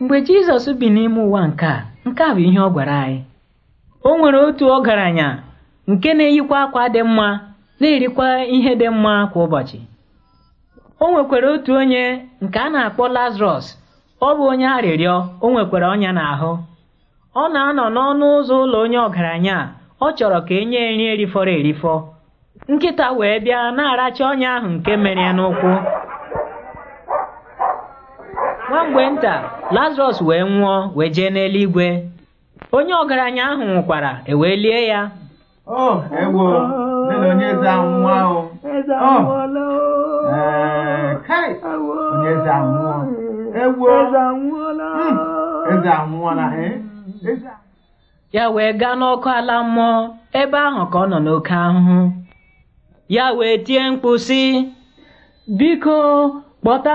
mgbe jizọs bi n'ime ụwa nke a nke a bụ ihe ọ gwara anyị o nwere otu ọgaranya nke na-eyikwa akwa dị mma na-erikwa ihe dị mma kwa ụbọchị o nwekwara otu onye nke a na-akpọ lazarọs ọ bụ onye arịrịọ o nwekwara ọnya n'ahụ ọ na-anọ n'ọnụ ụzọ ụlọ onye ọgaranya ọ chọrọ ka e nye nri erifọrọ erifọ nkịta wee bịa na-aracha ọnya ahụ nke mere ya n'ụkwụ nwa mgbe nta lazarus wee nwụọ wee jee n'eluigwe onye ọgaranya ahụ nwụkwara ewee lie ya ya wee gaa n'ọkụ ala mmụọ ebe ahụ ka ọ nọ n'oke ahụhụ ya wee tie mkpu biko kpọta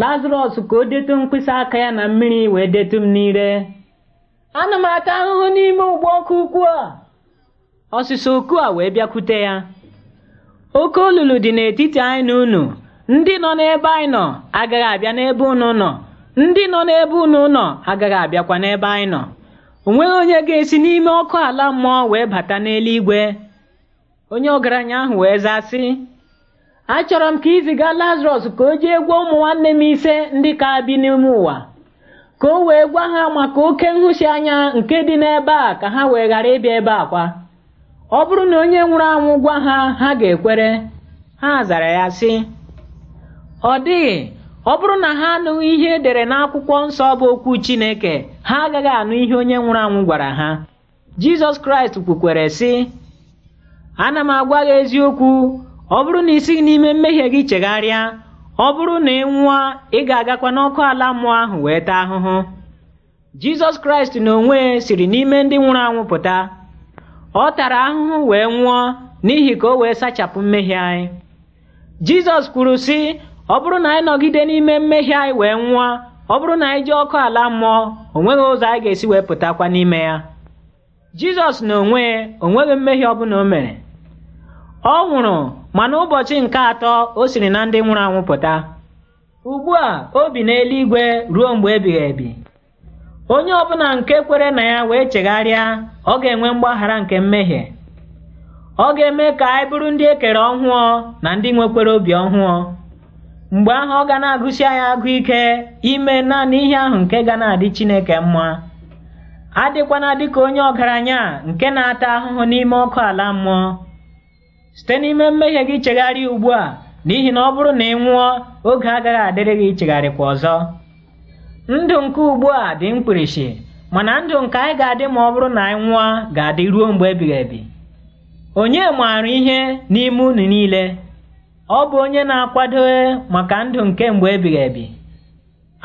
lazarọs ka o detu mkpịsị aka ya na mmiri wee detu m n'ire ana m ata ahụhụ n'ime ụgbọ ọkụ ukwu a ọsịsa oku a wee bịakwute ya oke olulu dị n'etiti anyị na unu ndị nọ n'ebe anyị nọ agaghị abịa n'ebe unu nọ ndị nọ n'ebe unu nọ agaghị abịakwa n'ebe anyị nọ o nweghị onye ga-esi n'ime ọkụ ala mmụọ wee bata n'eluigwe onye ọgaranya ahụ wee zaa sị achọrọ m ka iziga lazarus ka o jee gwa ụmụ nwanne m ise ndị ka bi n'ime ụwa ka o wee gwa ha maka oke nhụsi anya nke dị n'ebe a ka ha wee ghara ịbịa ebe a kwa ọ bụrụ na onye nwụrụ anwụ gwa ha ha ga-ekwere ha zara ya sị ọ dịghị ọ bụrụ na ha anụghị ihe edere n'akwụkwọ nsọ bụ okwu Chineke ha agaghị anụ ihe onye nwụrụ anwụ gwara ha Jizọs Kraịst kwukwere sị ana m agwa gị eziokwu ọ bụrụ na isighị n'ime mmehie gị chegharịa ọ bụrụ na ị nwụọ ị ga-agakwa n'ọkụ ala mmụọ ahụ wee taa ahụhụ jizọs kraịst n'onwe siri n'ime ndị nwụrụ anwụ pụta ọ tara ahụhụ wee nwụọ n'ihi ka o wee sachapụ mmehie anyị jizọs kwuru sị ọ bụrụ na anyị nọgide n'ime mmehie anyị wee nwụọ ọ bụrụ na anyị ji ọkụ ala mmụọ o nweghị ụzọ anyị ga-esi wee pụtakwa n'ime ya jizọs na onwe onweghị mmehie ọbụla o mere ọ nwụrụ ma n'ụbọchị nke atọ o siri na ndị nwụrụ anwụ pụta ugbu a o bi n'eluigwe ruo mgbe ebighị ebi onye ọbụla nke kwere na ya wee chegharịa ọ ga-enwe mgbaghara nke mmehie ọ ga-eme ka anyị bụrụ ndị ekere ọhụụ na ndị nwekwere obi ọhụụ mgbe ahụ ọ ga na-agụsi anyị agụ ike ime naanị ihe ahụ nke ga na-adị Chineke mma adịkwana dịka onye ọgaranya nke na-ata ahụhụ n'ime ọkụ ala mmụọ site n'ime mmehie gị chegharịa ugbu a n'ihi na ọ bụrụ na ị nwụọ oge agaghị adịrị gị kwa ọzọ ndụ nke ugbu a dị mkpirisi mana ndụ nke anyị ga-adị ma ọ bụrụ na anyị nwụọ ga-adị ruo mgbe ebighị ebi onye maara ihe n'ime unu niile ọ bụ onye na-akwado maka ndụ nke mgbe ebighị ebi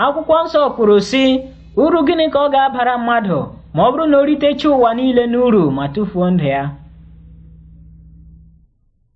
akwụkwọ nsọ kwuru sị uru gịnị ka ọ ga-abara mmadụ ma ọ bụrụ na o ritecha ụwa niile n'uru ma tụfuo ndụ ya